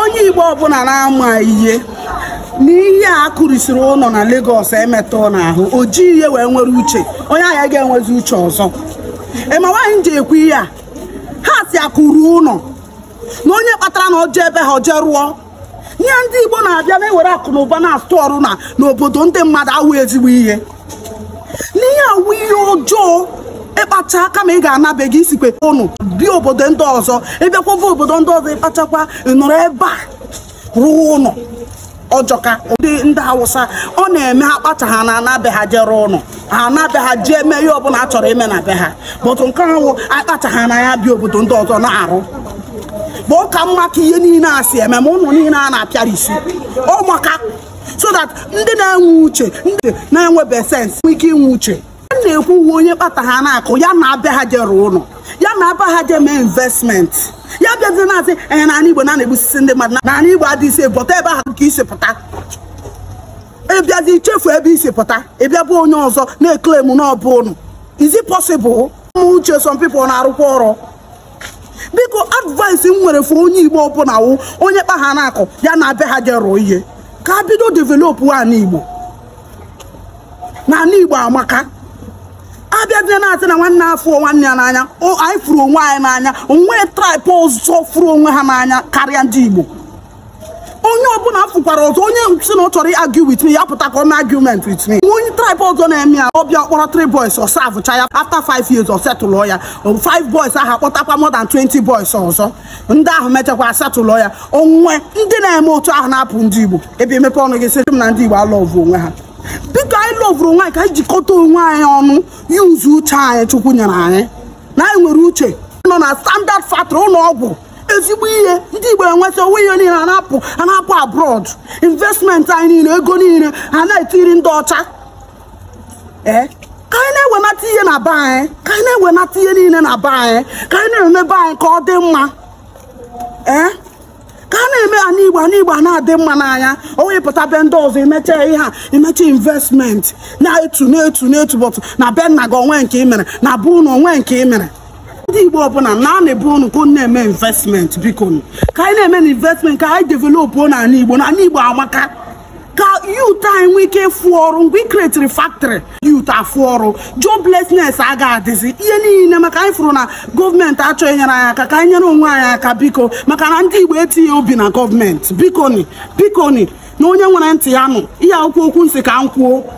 onye igbo ọbụla na-ama ihe n'ihe a kụrisiri ụlọ na legos emetụ n'ahụ o ji ihe wee nwere uche onye ahịa ga-enwezi uche ọzọ ịma nwaanyị ji ekwu ihe a ha si akụrụ ụlọ na onye kpatara na ọjọ ebe ha ọjọọ rụọ ihe ndị igbo na-abịa na-ewere akụ na ụba na-atụ ọrụ na n'obodo ndị mmadụ awụ ezigbo ihe n'ihe awụ ihe ọjọọ ịkpacha aka ma ị ga-anabeghị isikwe ụnụ bi obodo ndị ọzọ ịbịakwava obodo ndị ọzọ ịkpachakwa ịnụrụ ebe a rụọ ụnụ. ọjọka ndị ndị hausa ọ na-eme ha kpacha ha na anabe ha jere ụnọ ha anabe ha ji ihe ọbụla a chọrọ ime na be ha bụtụ nke ahụ akpacha ha na ya bi obodo ndị ọzọ na-arụ bụ ka mma ka ihe niile a si eme ma ụnụ niile a na-apịara isi ọ so that ndị na-enwe uche ndị na-enwebe sensị ike inwe uche na-ekwu uwe onye kpata ha na-akụ ya na abịa ha jere ụlọ ya na aba ha je mee investment ya bịazie na-asị enye n'ala igbo na na-egbusisi ndị mmadụ n'ala igbo adịghịsi bọta ebe ahụ ka isi pụta ịbịazi ichefu ebe isi pụta ịbịa bụ onye ọzọ na eklem n'ọbụ ụnụ is it possible ụmụ uche sọmpipụ na-arụkwa ọrụ biko advice m nwere fụ onye igbo ọbụla wụ onye kpa ha na-akụ ya na abịa ha je ihe ka bido develop n'ala igbo n'ala igbo amaka abịa dị na-atị na nwanne afọ nwanne ya n'anya anyị furu onwe anyị n'anya onwe traịpụ ọzọ furu onwe ha n'anya karịa ndị Igbo onye ọbụla fụkwara ọzọ onye si na ọ chọrọ argue with me ya pụta ka ọ mee argument with onye tribe ọzọ na-eme ya ọbịa kpọrọ three boys ọsa savụcha ya after five years ọ ya five boys ahụ akpọtakwa more than 20 boys ọzọ ndị ahụ mechakwa asetụlụ ya onwe ndị na-eme otu ahụ na-apụ ndị Igbo ebe emepe ọnụ gị sị m na ndị Igbo alọvụ onwe ha biko anyị lọvụrụ onwe anyị ka anyị jikọta onwe anyị ọnụ iwuzi uche anyị chukwu nyere anyị na anyị nwere uche nọ na standard factory ụlọ ọgwụ ezigbo ihe ndị igbo enweta onwe ihe niile anapụ anapụ abroad Investment anyị niile ego niile a na-etiri ndị ọcha ee ka anyị na-ewenata ihe na be anyị ka anyị na-ewenata ihe niile na be anyị ka anyị na-emebe anyị ka ọ dị mma ee mgbe na a na-adị mma n'anya onye pụta be ndị ọzọ imecha ihe a imecha investment na-etu na-etu na-etu bọtụ na be nna gị onwe nke imere na bụ unu onwe nke imere. mere ndị igbo ọbụla na a na-ebu unu ka na-eme investment biko ka anyị na-eme na investment ka anyị develop n'ala igbo anyị igbo amaka youth a enwe ike fụ ọrụ mgbe ị kretiri factory youth afụ ọrụ joblessness aga adịzi ihe niile maka anyị fụrụ na gọọmenti achọghị nyere anyị aka ka anyị nyere onwe anyị aka biko maka na ndị igbo etinye obi na gọọmenti bikoni bikoni na onye nwere ntị ya nụ ihe akwụkwọ okwu nsị ka m kwuo